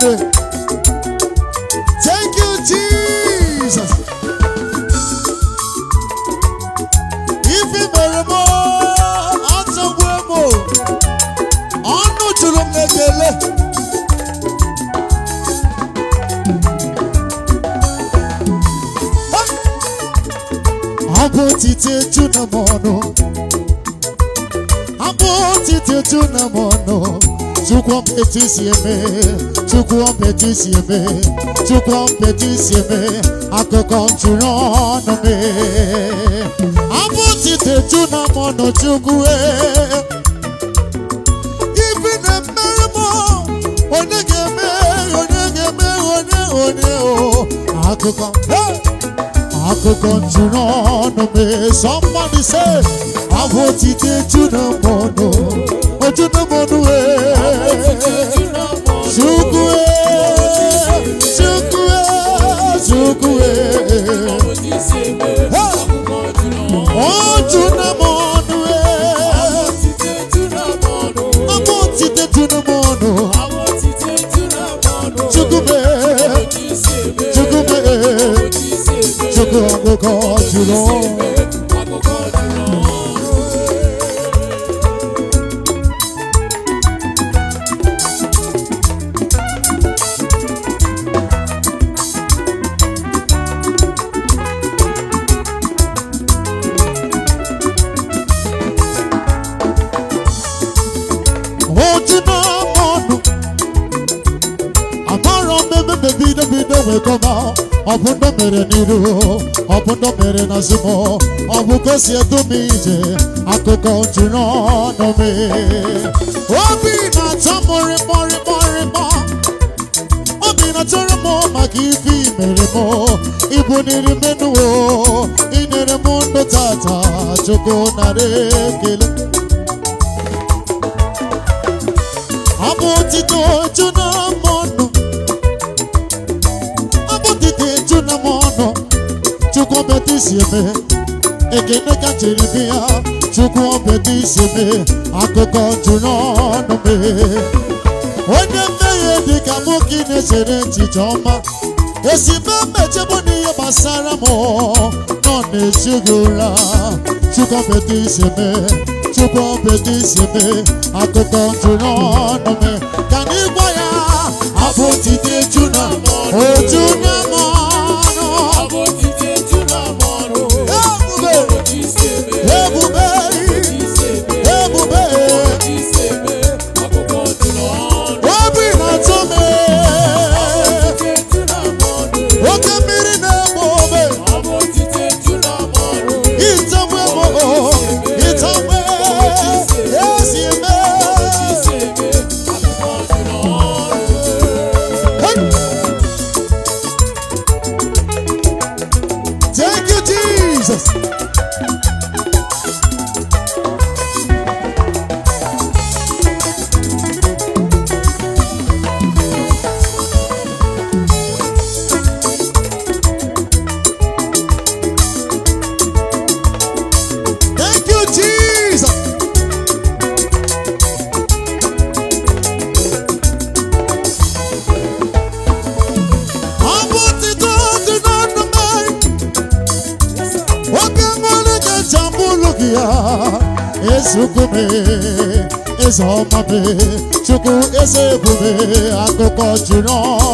today. Thank you, Jesus. Ife mere m ọnụ jụrụ m ekele. Abụ otite eju na m ọnụ. Chukwu mpetisi eme, Chukwu mpetisi eme, Chukwu mpetisi eme, akụkọ ntụrụ ọnụ me. Abụtite ju na mọnụ Chukwu e. Ibi na-emere m onye ga-eme, onye ga-eme, onye onye o. Akụkọ, akụkọ ntụrụ ọnụ me. Somebody say, abụtite ju na mọnụ. Ochuno Monue Shukwe Shukwe Shukwe Ochuno Monue Amotite Tuno Monu Chukume Chukume Chukume Chukume Chukume ọbụndọ mere n'iru ọbụndọ mere n'azụmọ abu kasi gosi edum ije akụkọ na ọnụ me. obi na-atọ mụrịmọrịmọrịmọ obi na-atọrọ mo maka ife imere m ibuniri menuo inyere m ndụ tata chukwu na ekele ọ bụ otito jụ na mọnụ chukwu obeta isi eme ekene ka chere be ya chukwu obeta isi eme akụkọ juru ọnụ mee onye mmehie dịka nwoke na-echere echiche ọma esibe mmechebụ n'ihe gbasara m nọ na-echi gị ụra chukwu obeta isi eme chukwu obeta isi eme akụkọ juru ọnụ mee ka n'ịgwa ya abụ tite juna ojuna chukwu eze ekwube akụkọ jiri ọọ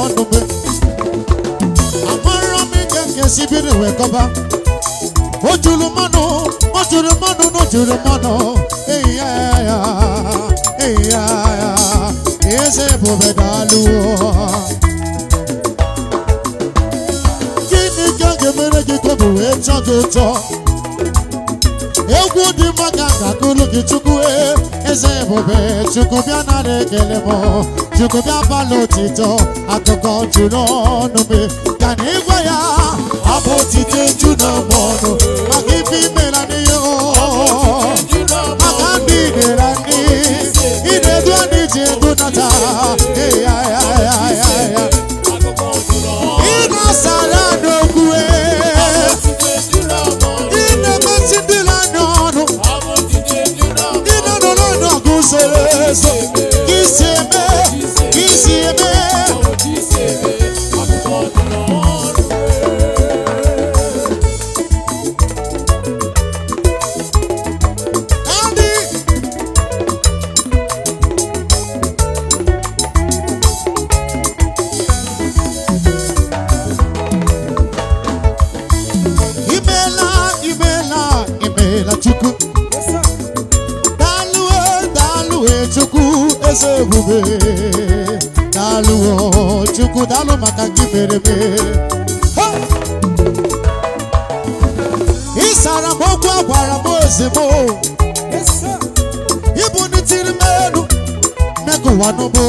ekele m Chukwu bịa n'otito akụkọ juru ọnụ m ka na ịgwa ya abụ otito ju n'ọgbọ ọnụ ebe ịsara m okwu agwara m ozigbo ịbụ ndị tiri m elu megụwa n'ụbụ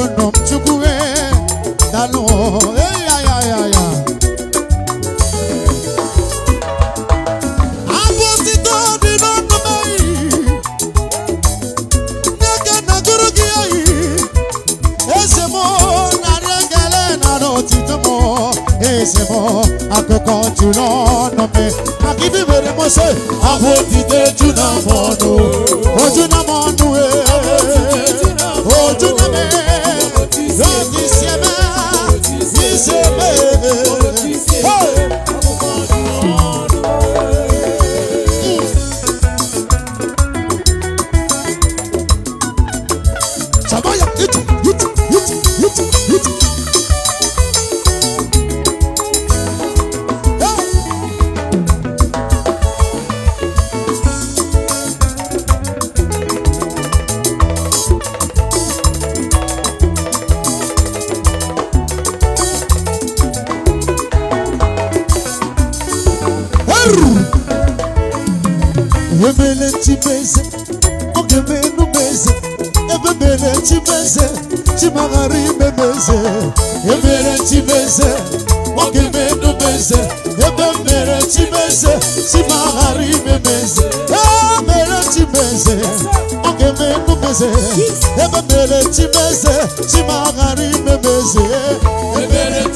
eze ebe mere chimeze chima ghara imeme eze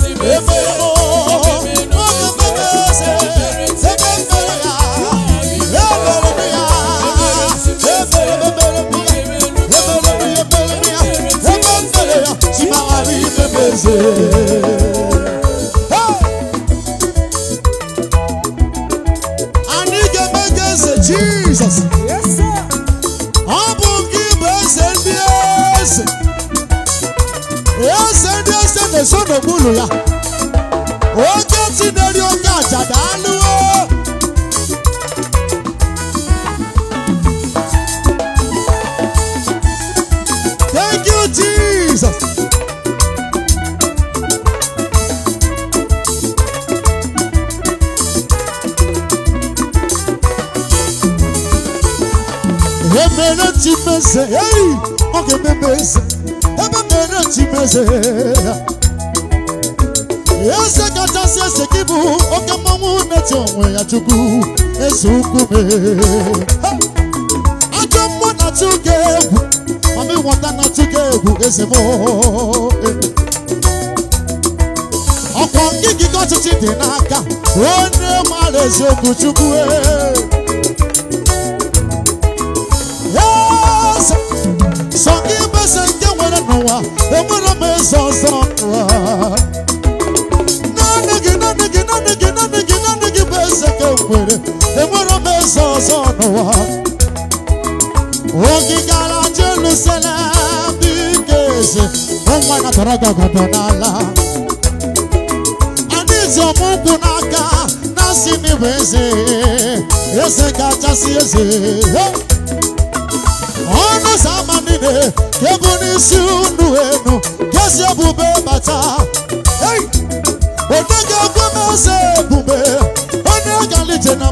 bụ chukwu sọ gị mesa nke nwere n'ụwa enwere m eze ọzọ naanị gị naanị gị naanị gị bụ eze ka nwere enwere m eze ọzọ n'ụwa gara n'aka kachasị m bụ eze eze kachasị eze ọnụ ụzọ ama niile kebu n'isi unu enu kezi ebube bata onye ga-ekwe m eze ebube onye galije na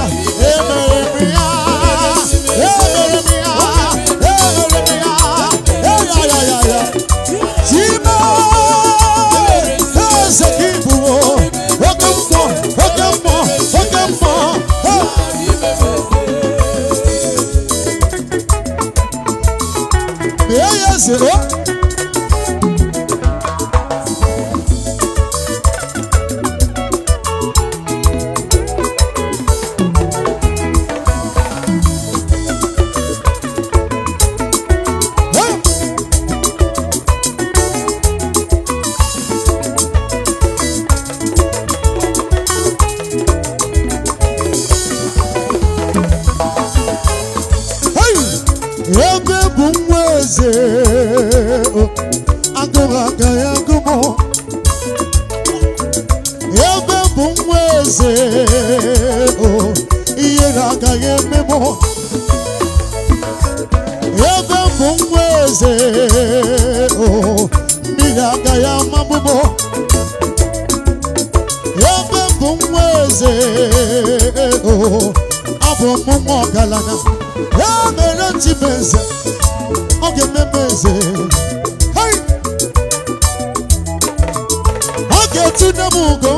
박수. 어? eze o mmiri agaghị ama mabụbo ya bụ nwa eze o abụ m nwa ọgaranya ya mere eze ọ ga-ememe eze ọ ga-etinye m ugo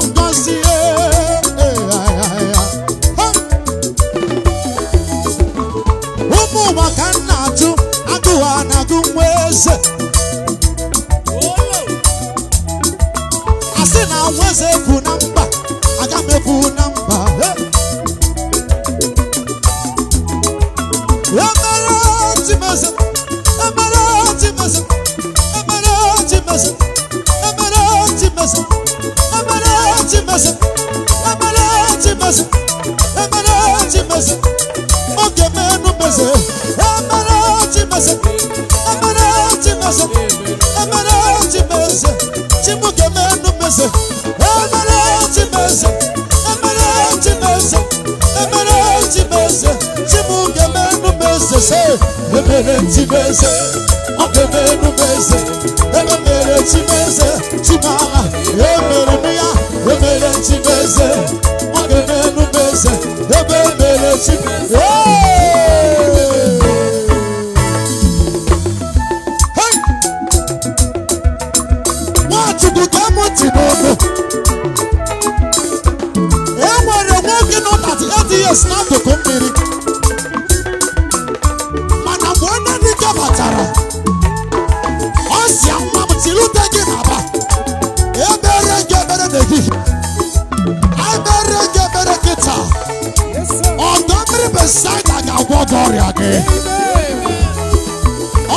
ata ọrịa gị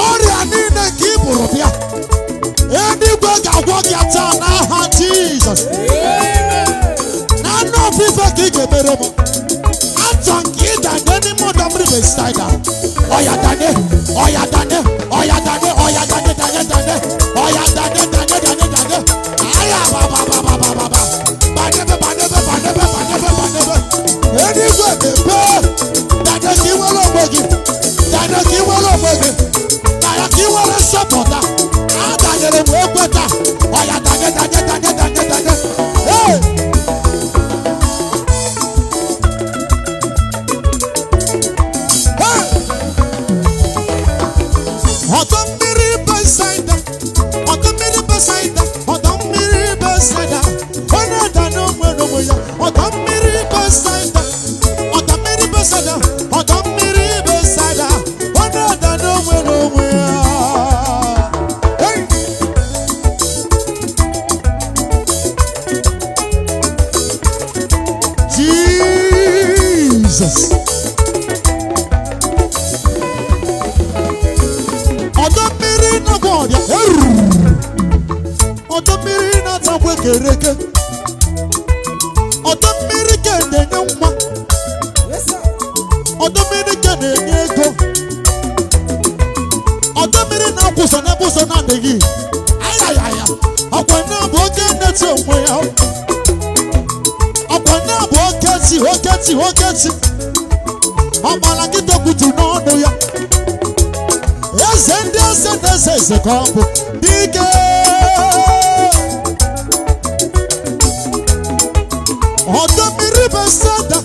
ọrịa niile nke ị bụrụ bịa eluigwe ga-agwọ gị taa n'aha jizọs na anụ ofufe ka ị ga-emere m atọ nke ịda n'ime ọdọ mmiri mesitaida ọya danye ọya danye si nwoke si ọgbara ya eze ndị eze na eze eze ka ọ bụ dike ọdọ kike bụ sada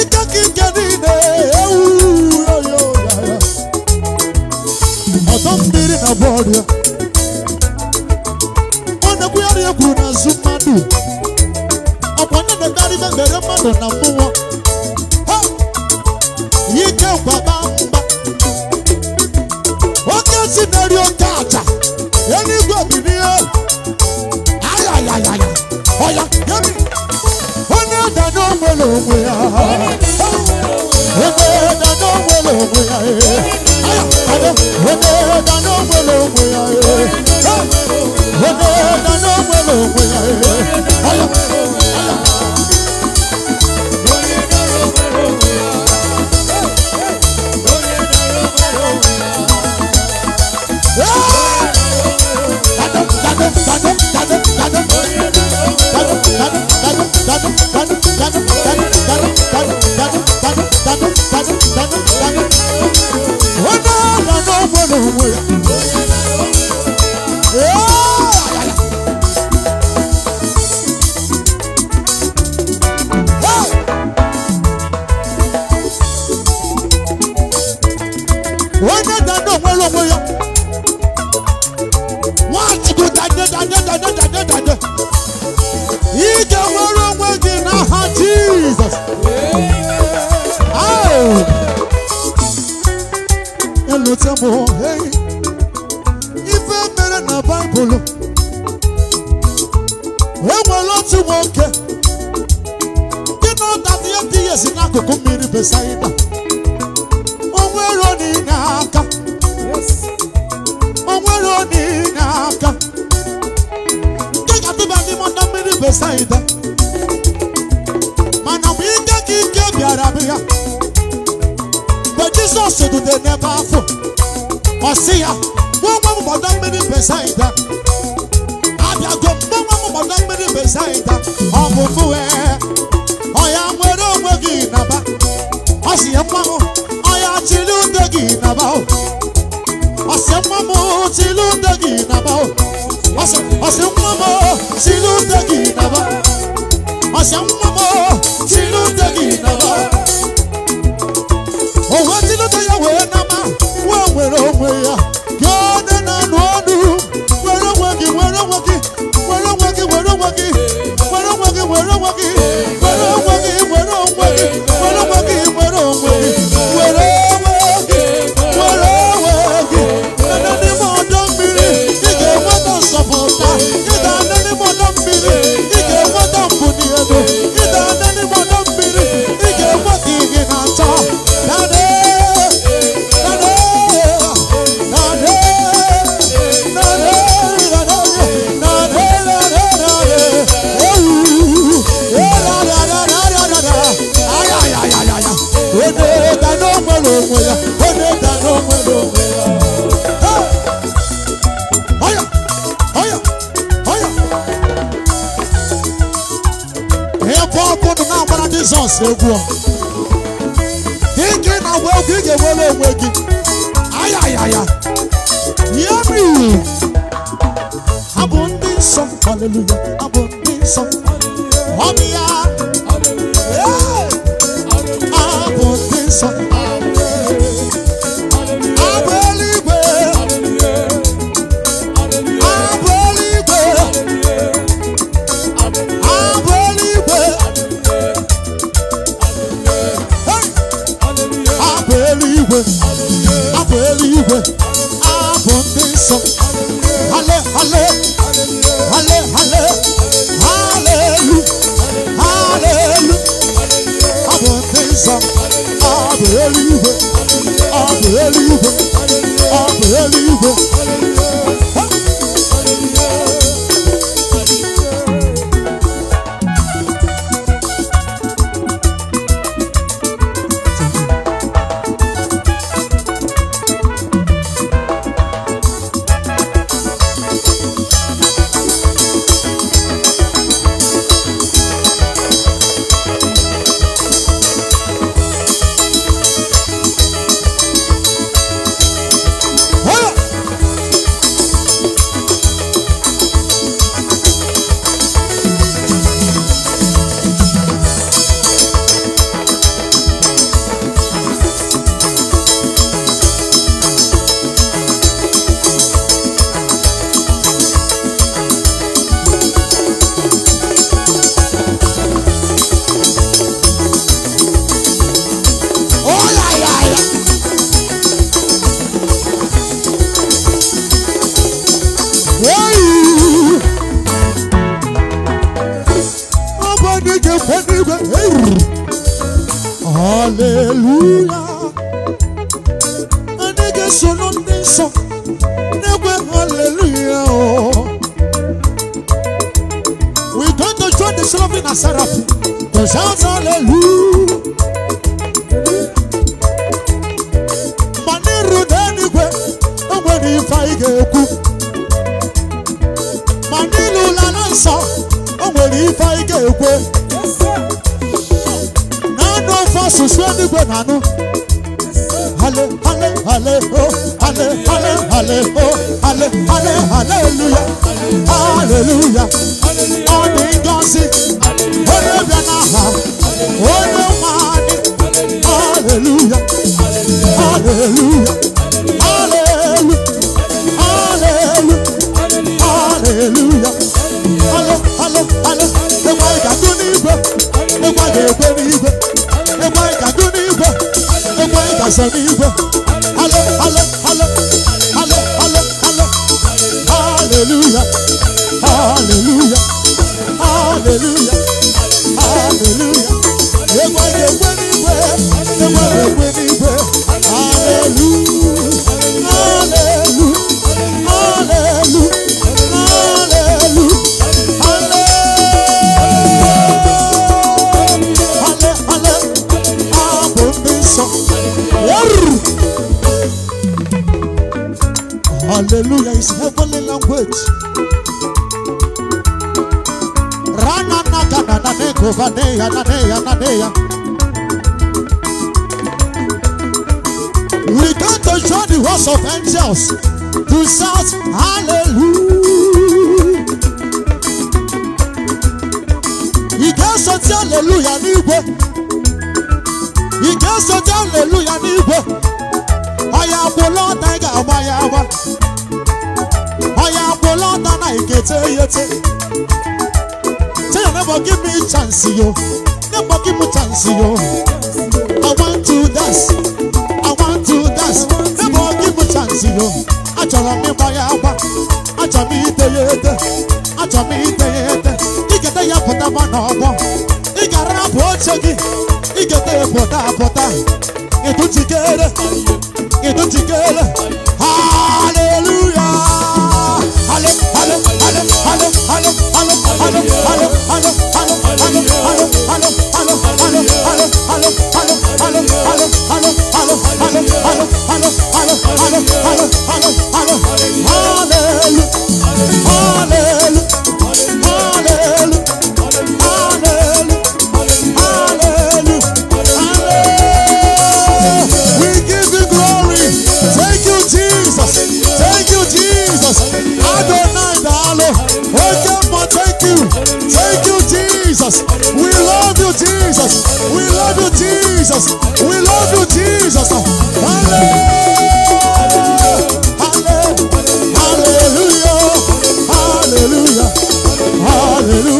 ike ka ike niile ewu ọdọ na ọ na kárí gbẹ̀gbẹ̀rẹ̀ mọ̀nà nà fún wọn. yìí jẹ́ bàbá ń bá. Oh ké sí lórí ọjà àjà ẹni gbòmí ni ó. ayayayaya ọ̀yà yẹ́mi. ó ní ìdáná wẹlẹ̀ òwe ya. ó ní ìdáná wẹlẹ̀ òwe ya. ayà àdó ó ní ìdáná wẹlẹ̀ òwe ya. ó ní ìdáná wẹlẹ̀ òwe ya. ayà ayà. Where? alụta m ife mere na baịbụl enwere otu nwoke dị na ọdata dị ya si n'akụkụ mmiri besaida onwere onye aka onwere niile aka nke ga-adịba n'ime ọdọ mmiri besaịda. Jesus do they never fool. Osia, one woman madam many beside them. Abia go, one woman madam many beside them. Ọmọ fún ẹ, ọ̀yà wẹ̀rẹ̀ ògbégi nàbà. Ọ̀sìyẹ pamọ́, ọ̀yà tìlú dègì nàbà o. Ọ̀sìyẹ pamọ́, tìlú dègì nàbà o. Ọ̀sìyẹ pamọ́, tìlú dègì nàbà. Ọ̀sìyẹ pamọ́, tìlú dègì nàbà o. oghọtilụta ya nwere nwere onwe ya na anụ ọnụ were onwe gị were onwe nwoke. Jizọs egwu ike na-agba egwu ị ga ewere onwe gị ayayaya yeri abụ ndị nsọ abụ ndị nsọ Hallelujah. Hallelujah is heavenly language. Rana na na na na ne ko va ne ya na ne ya na ne ya. We come to show the host of angels to shout hallelujah. He ga-esoti hallelujah n'igwe. He ga-esoti hallelujah n'igwe. Ọ ya bụ lọta ị ga ga-eteyete tell never give me chance yo never give me chance yo i want to dance i want to dance never give me chance yo achọrọ m ịgba ya achọrọ m ite ya ete achọrọ m ya ete ya pụta ị gara bụ oche gị igete ya pụta pụta Hallelujah, hallelujah.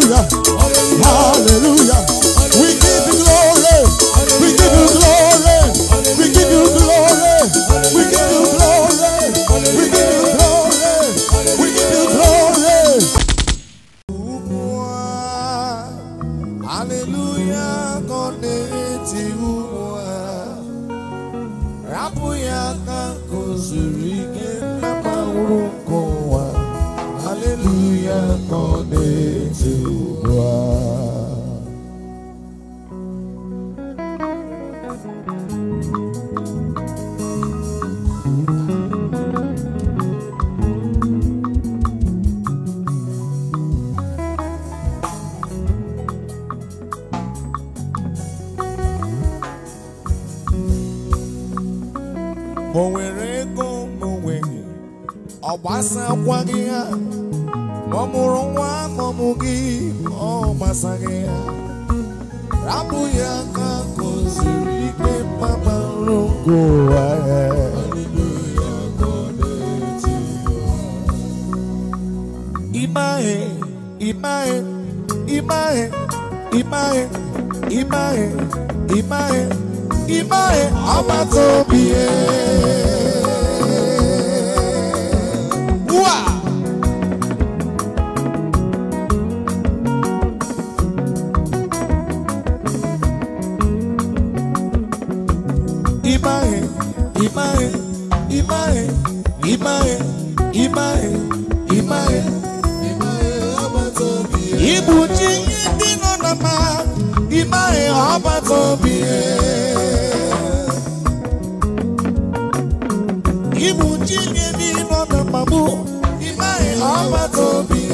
ọba tó bí e. Ibu ji nye mi nọ na mmamu, ime ọba tó bí e.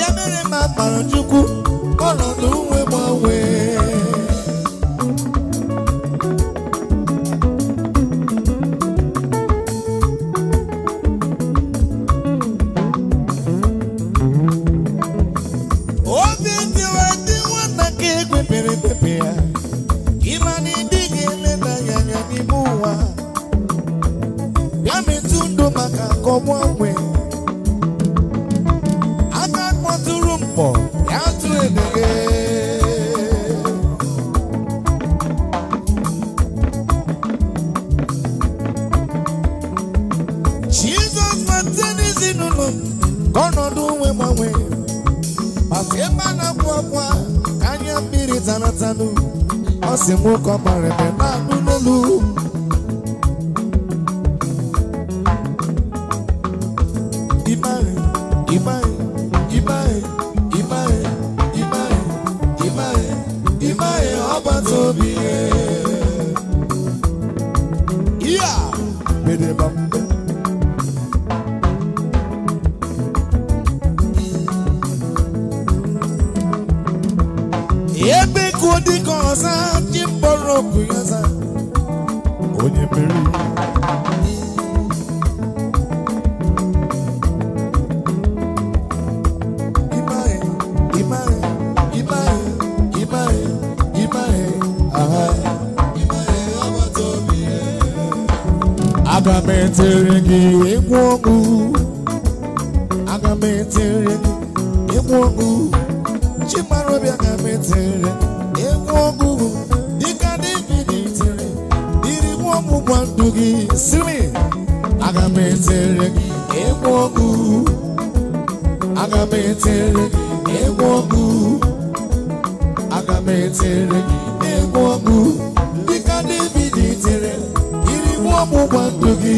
bịa mere ma gbara chukwu ọnọdụ nwe gbanwee gị siri aga m etere gị egwu ọgụ aga m etere gị egwu ọgụ aga m etere gị egwu ọgụ dịka David tere iri ọgbụgba ndụ gị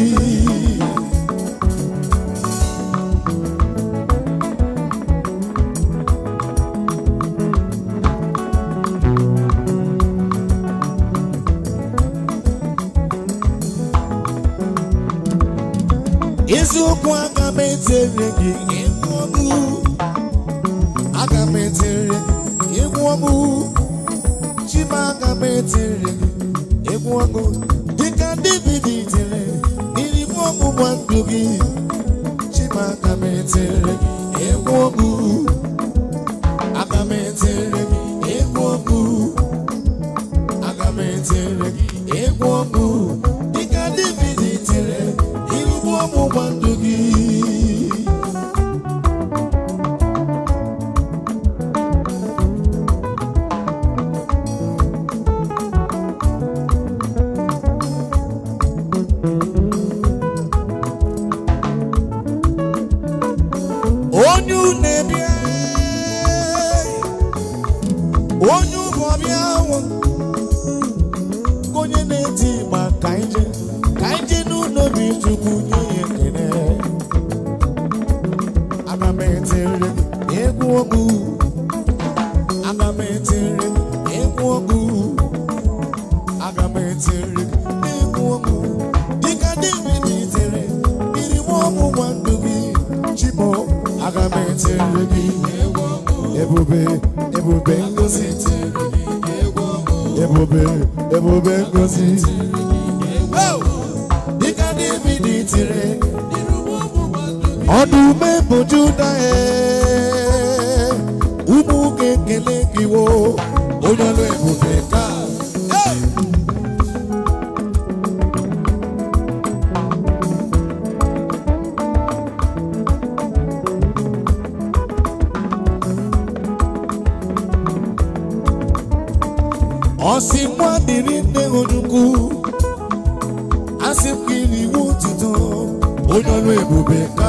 etiri gị egwu ọgụ aga m egwu ọgụ chima aga m egwu ọgụ dịka david tiri n'iri ọgụ nwa gị chima aga m egwu ọgụ gọọmenti nri gị ebube ebube be, ebube ebube ngozi dịka david tiri ọdụm bụ juda ụmụ ga-ekele n'ime onukwu asị m gị n'iwu ntụtụ onye ọrụ ebube ka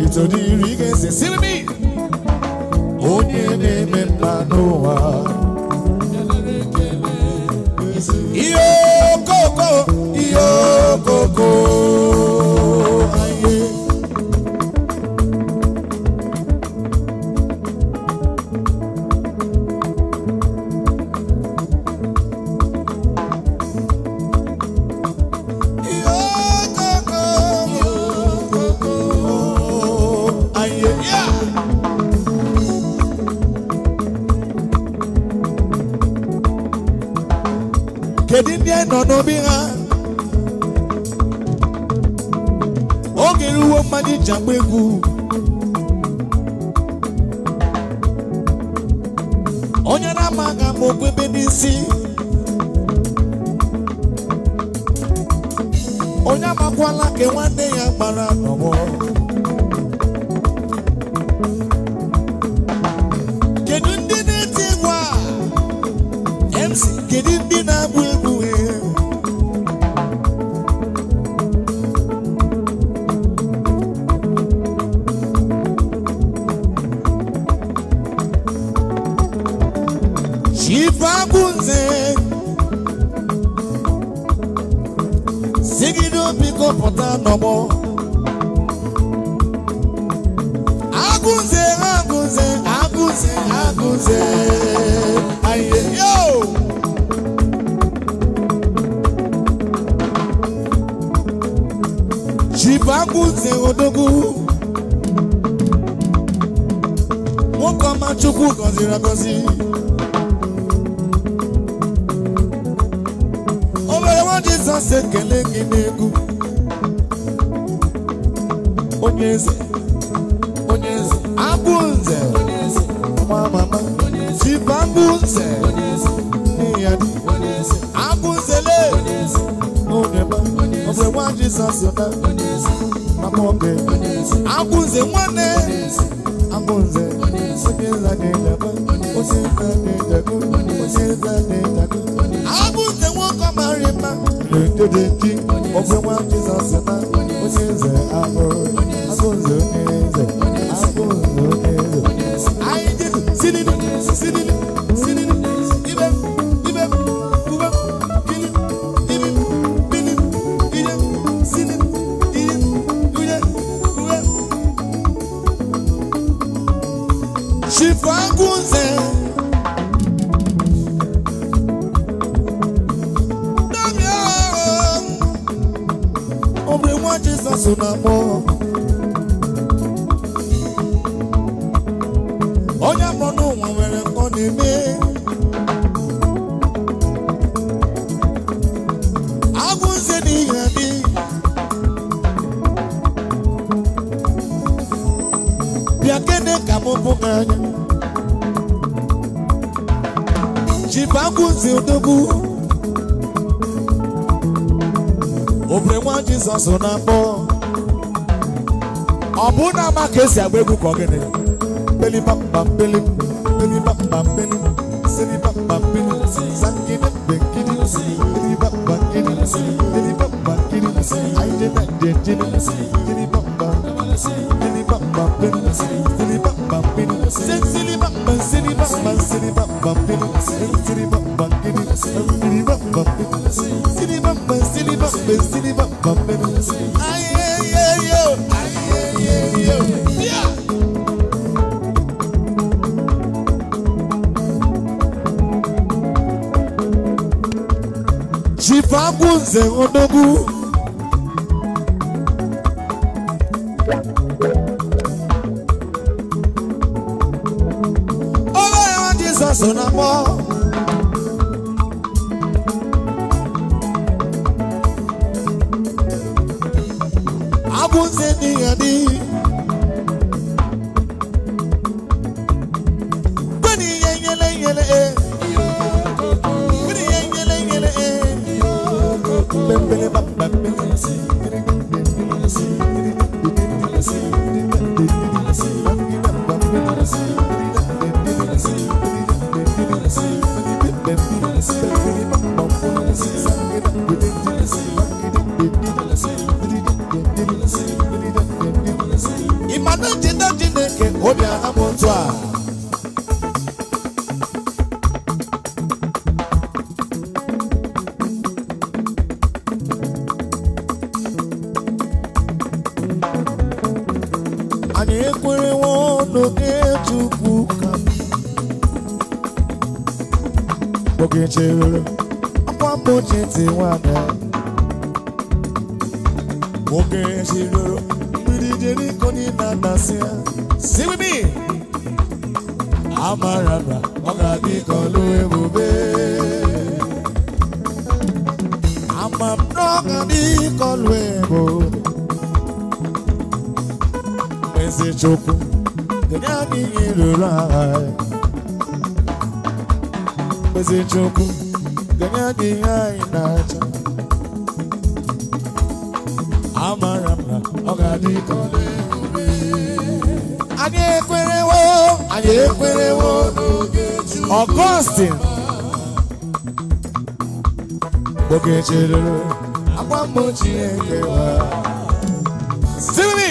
to the reggae say, sing me. Onye na-eme mma n'ụwa. Ihe coco. Jizọs ekele gị n'egwu onye eze onye eze abụ nze mama jiba mbụ nze ya abụ nzele onye ma ọbụ nwa Jizọs na mama oge nze nwanne abụ nze onye nza na-edebe onye nza dị onye na I na na-eto bump, bump, si agba egwu ka ọ gịnị belibambambeli bump, silibambambeli sangide bekini silibambambeli belibambambeli anyị dị na dị dị onye na-atasị ya si with me amara na ọ ga-adị ka ọlụ I'm a na ọ ga-adị ka ọlụ ebube eze chukwu dịnye anyị ihe ruru anyị eze chukwu dịnye anyị ihe anyị na-acha amara m na ọ ga-adị ka ọlụ ebube adékúnrẹ́wó adékúnrẹ́wó augustine Ogechiloro agbamọ Chineke wa simi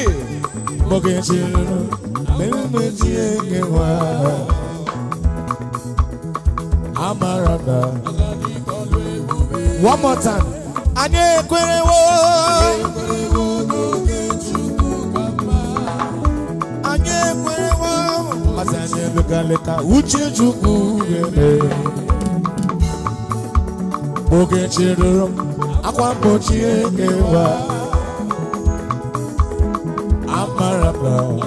Ogechiloro one more time abalị uche uchechukwu ga-eme oge chịrịrị m akwa mgbochi ekewa amara m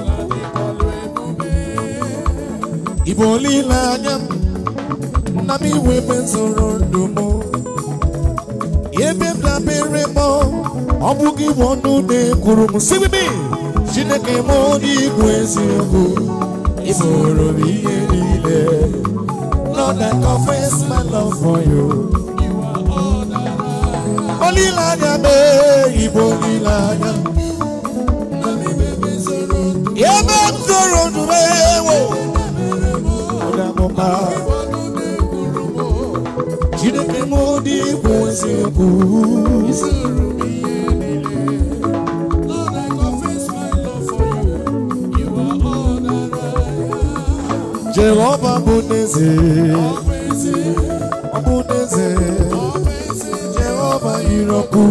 igbo olileanya m nna m iwe ebe ndụ m ebe m dabere m ọ bụghị bụ ọnụ na-ekwuru m sibibi chineke m onye igwe eziokwu ịbụrụ m ihe niile Lord I confess my love for you anya. m ịbụ olileanya ebe m zoro ndụme dị bụ eziokwu Jehova bụ n'eze ọ bụ n'eze Jehova yiri ọkụ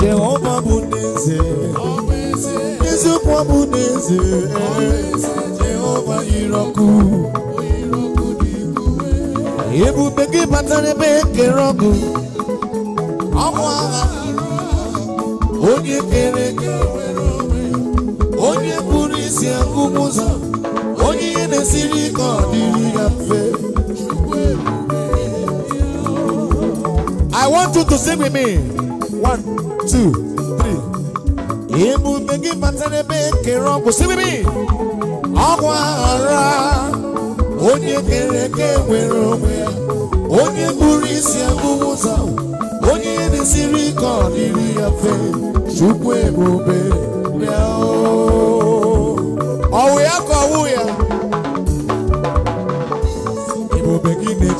Jehova bụ n'eze eziokwu ọ bụ n'eze Jehova yiri ọkụ ebube gị batara ebe ekere ọgụ ọgwụ agha onye kere tie nkume ụzọ onye ihe na I want you to sing with me one two three emume gị bata n'ebe ekere sing with me ọgwụ aghara onye kere eke nwere onwe ya onye kpụrụ isi akpụwa ụzọ onye ihe na-esiri ike ọdịrị ya mfe chukwu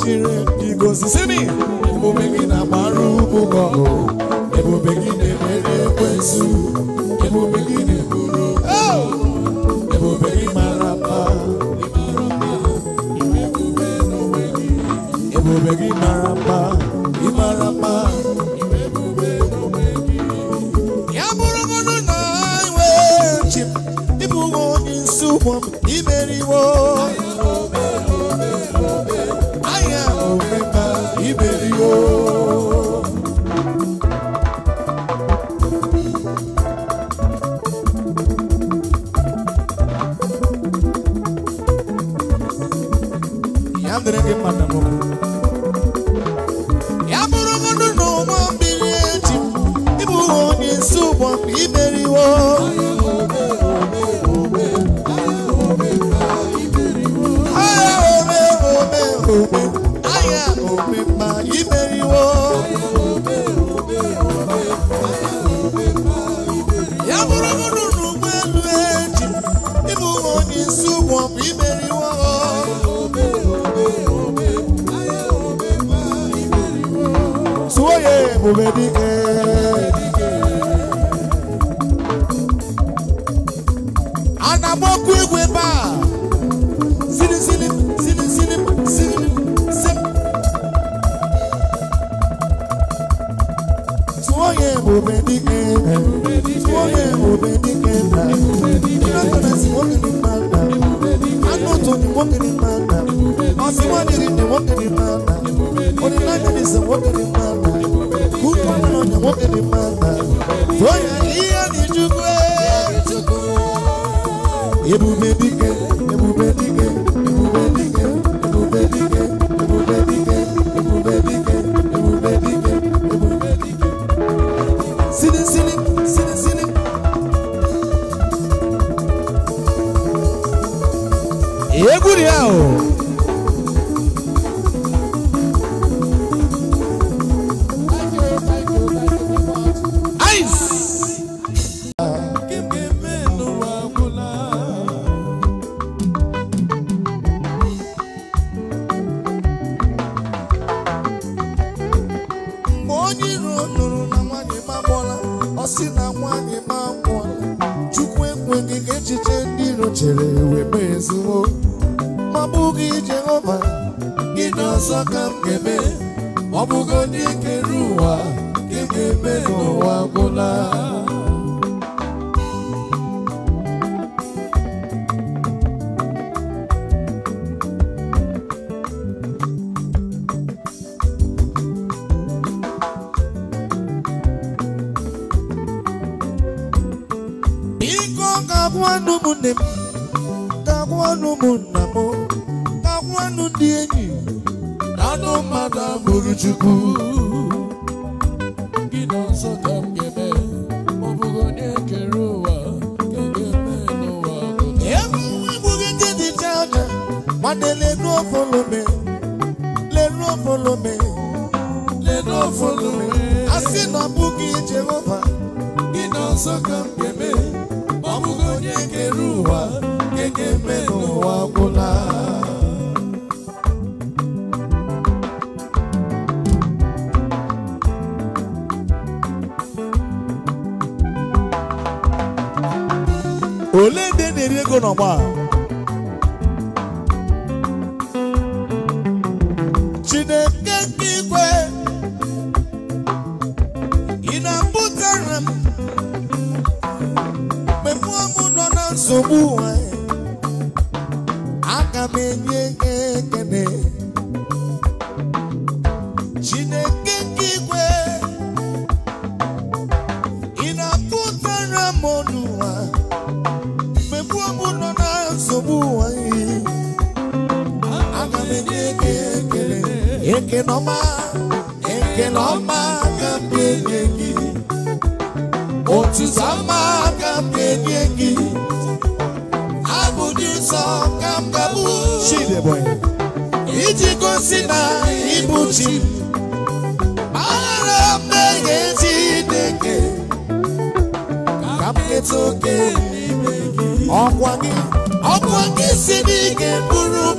chiri igozi si mi ebube gị na-agbara ugwu ọgụ ebube gị na-emere ekwensu begin gị na-eburu ebube gị mara mma ebube gị mara fuck up with ana m enye ekele Chineke igwe ị na-apụtara m n'ụwa mgbe mgbu nọ na nsogbu ihe m enye ekele otu gị ka m ga-abụ iji gosi na ịbụ chi maara mmehie Chineke ka m keta oke ọkwa gị ọkwa gị si n'ike ị ga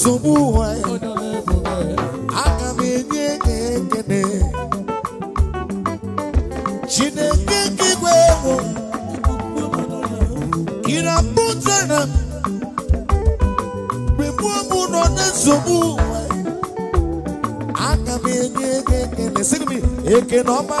nsogbu ụwa aga m enye gị ekele chineke nke igwe ewu gị na pụtara m mgbe mụ nọ na nsogbu ụwa aga m enye gị ekele sị m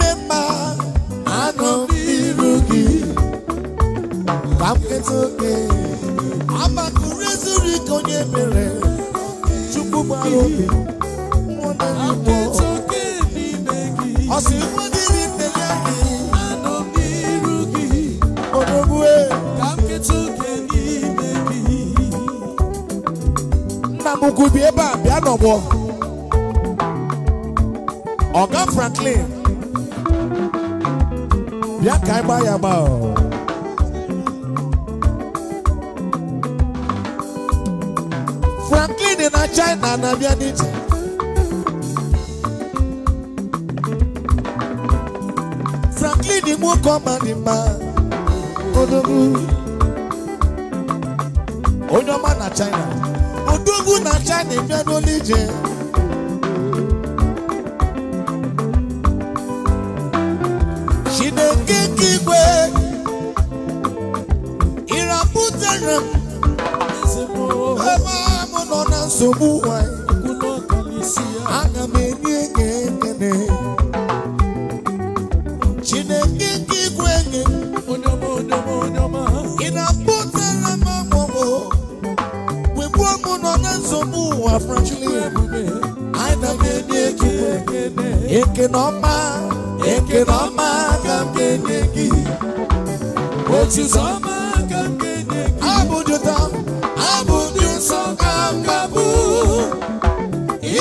Abano Birugi Kapketoke Abakurezuri Konye Mere Chukwumarobi Mwone Nipo Kapketoke Nibegi Osi Mwadiri Neyagi Abano Birugi Odobue Kapketoke Nibegi Namugubi Eba Bianobo Ọ̀gá Franklin bịa ka anyị Franklin na China na-abịa Franklin nwoke ọma dị mma odogwu onye ọma na China odogwu na China bịa n'olu ije nsogbu nwanyị aga m enye enye ekene chineke nke igwe ị na akpọtara m amụmụ wegbuo m nọ na nsogbu ụwa frankly aga m enye ekene ọma ekene ọma aga m enye gị aga m enye gị nsọ ka m ga-abụ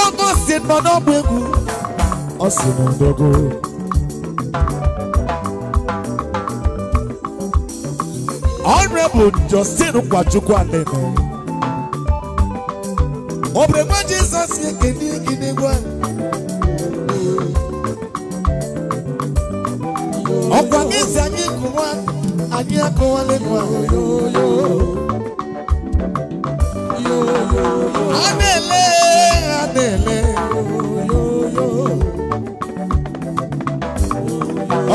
Ngwongwo si nọ n'ọgba egwu ọ si n'ndogo Honorable Justin Kwachukwu Anene Obregwa Jizọs ekene ikinigwe ọkwa gị si anyị kụwa anyị akụwala ekwe a na-ele na-ele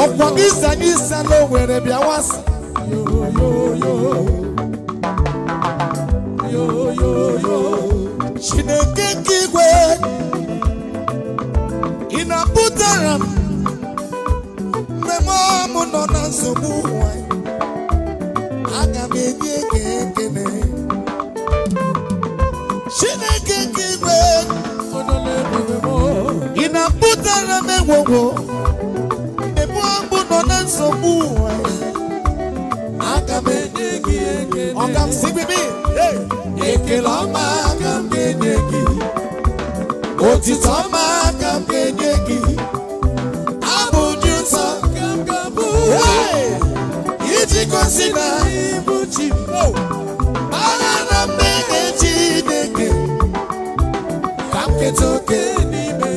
ọkwa isa n'isa na owere bịa wasa chineke nke igwe ị na-apụtara m mmemme ọmụ nọ na nsogbu ụwa aga m enye pụtara m egwogwo ebu abụ nọ na nsogbu ụwa aga m enye gị ekele ọga m si bibi ọma aga m ga-enye gị otito ọma aga m ga-enye gị abụ dị nsọ iji gosi na ịbụ chi oh! mara na mmehie Chineke ka m keta oke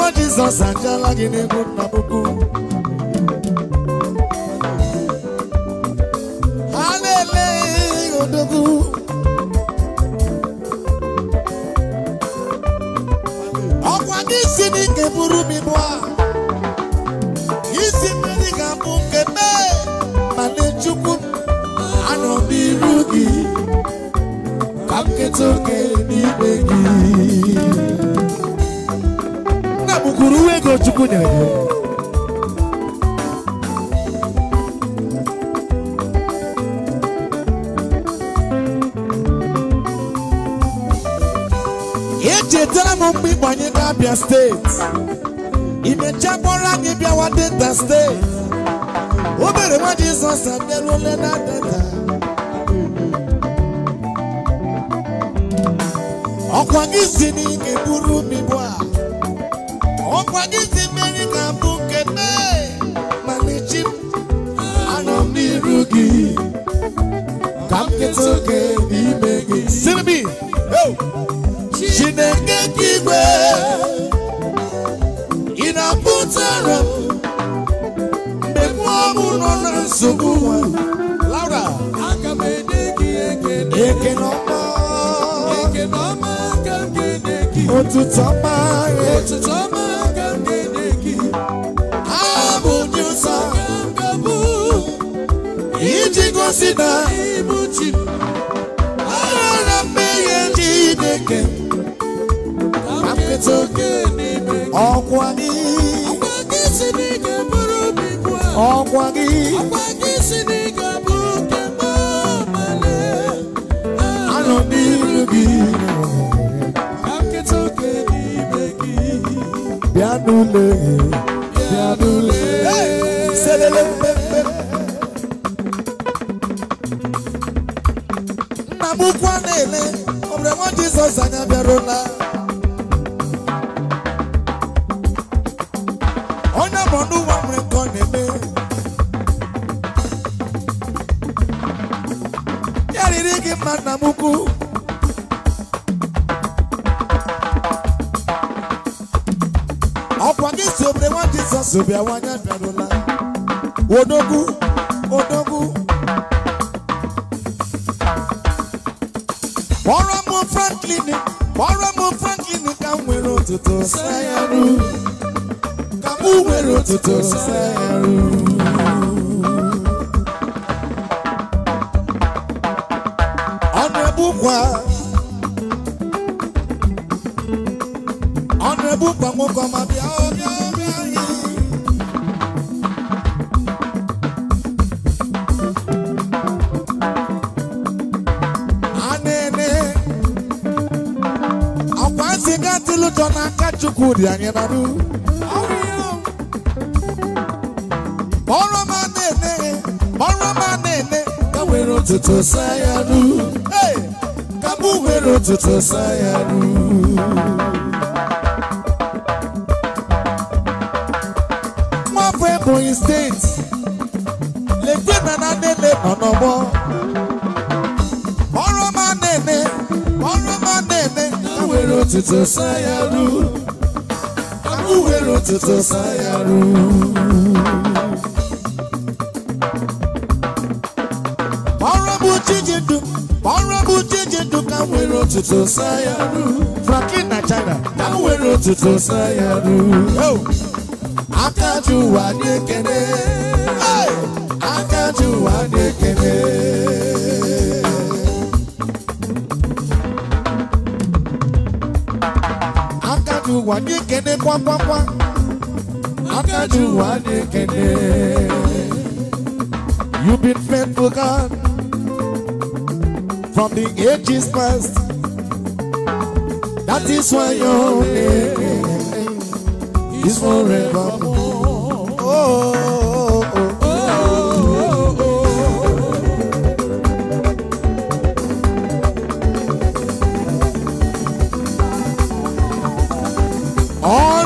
Mama Jizọs ajala gị n'egwu na puku ha na-ele odogwu ọkwa gị isi dị nke buru m ibu a isi mmeri ga-abụ nke mee ma na-echukwu anọ n'iru gị ka nketa oke n'ime gị kwuru uwe ego chukwu nyere gị echetara m mgbe ịgbanye n'Abia steeti imecha kpọrọ anyị bịawa deta steeti obere nwa Jizọs abịaruole na deta ọkwa gị si na ị ga ọkwadịzi mmeri ga-abụ nke mee mana anọ n'iru gị ka gị Chineke gị igwe na-apụtara m mgbe na nsogbu Laura aga gị ọma iji gosi na ịbụ chi aghara mmehie Chineke ọkwa gị ọkwa gị anọ n'iru gị bịa n'ule bịa n'ule selele Jizọs anyị abịarụla onye bụ n'ụwa nwere nke ọ na-eme ya riri gị mma nna m ukwu ọkwa gị si obere nwa Jizọs bịawanye abịarụla odogwu Franklin kpọrọ m Franklin ka m nwere ụtụtụ sayaru ka m nwere ụtụtụ sayaru ọ na-ebukwa chukwu dị anyị n'anụ ọrụ ọma na-ene ọrụ ọma na-ene ka were ụtụtụ saa ya nụ ka mụ were ụtụtụ saa ya nụ nwafọ steeti lekwe na na nene ọrụ ọma na ọrụ ọma na ka were n'ụtụtụ sayaru ọrụ bụ ka nwere otuto sayaru na china ka nwere otuto sayaru aka ji ụwa you kene kene you been faithful God from the ages past that is why your name is forevermore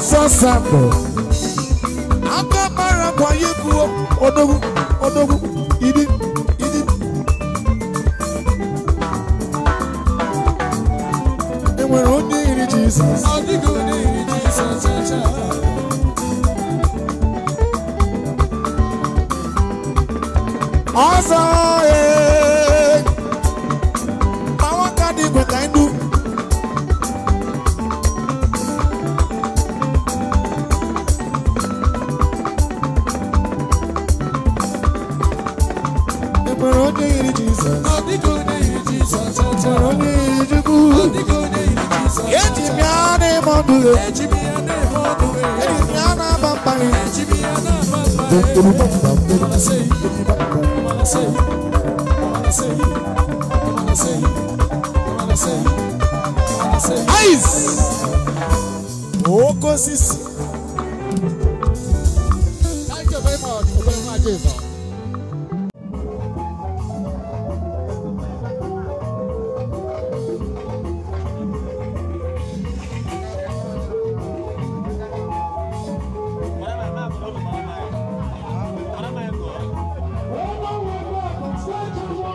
sọ sàpọ̀. Agbábára kwa yé ku o, odogun, ìdí, ìdí. onye iri Jizọs. Ọ dịghị onye iri Jizọs ọcha. Ọzọ ya. Ejimi ana emodu Ejimi ana emodu Ejimi ana baba Ejimi ana baba Ejimi ana baba Malasei Malasei Malasei Malasei Malasei Malasei Aiz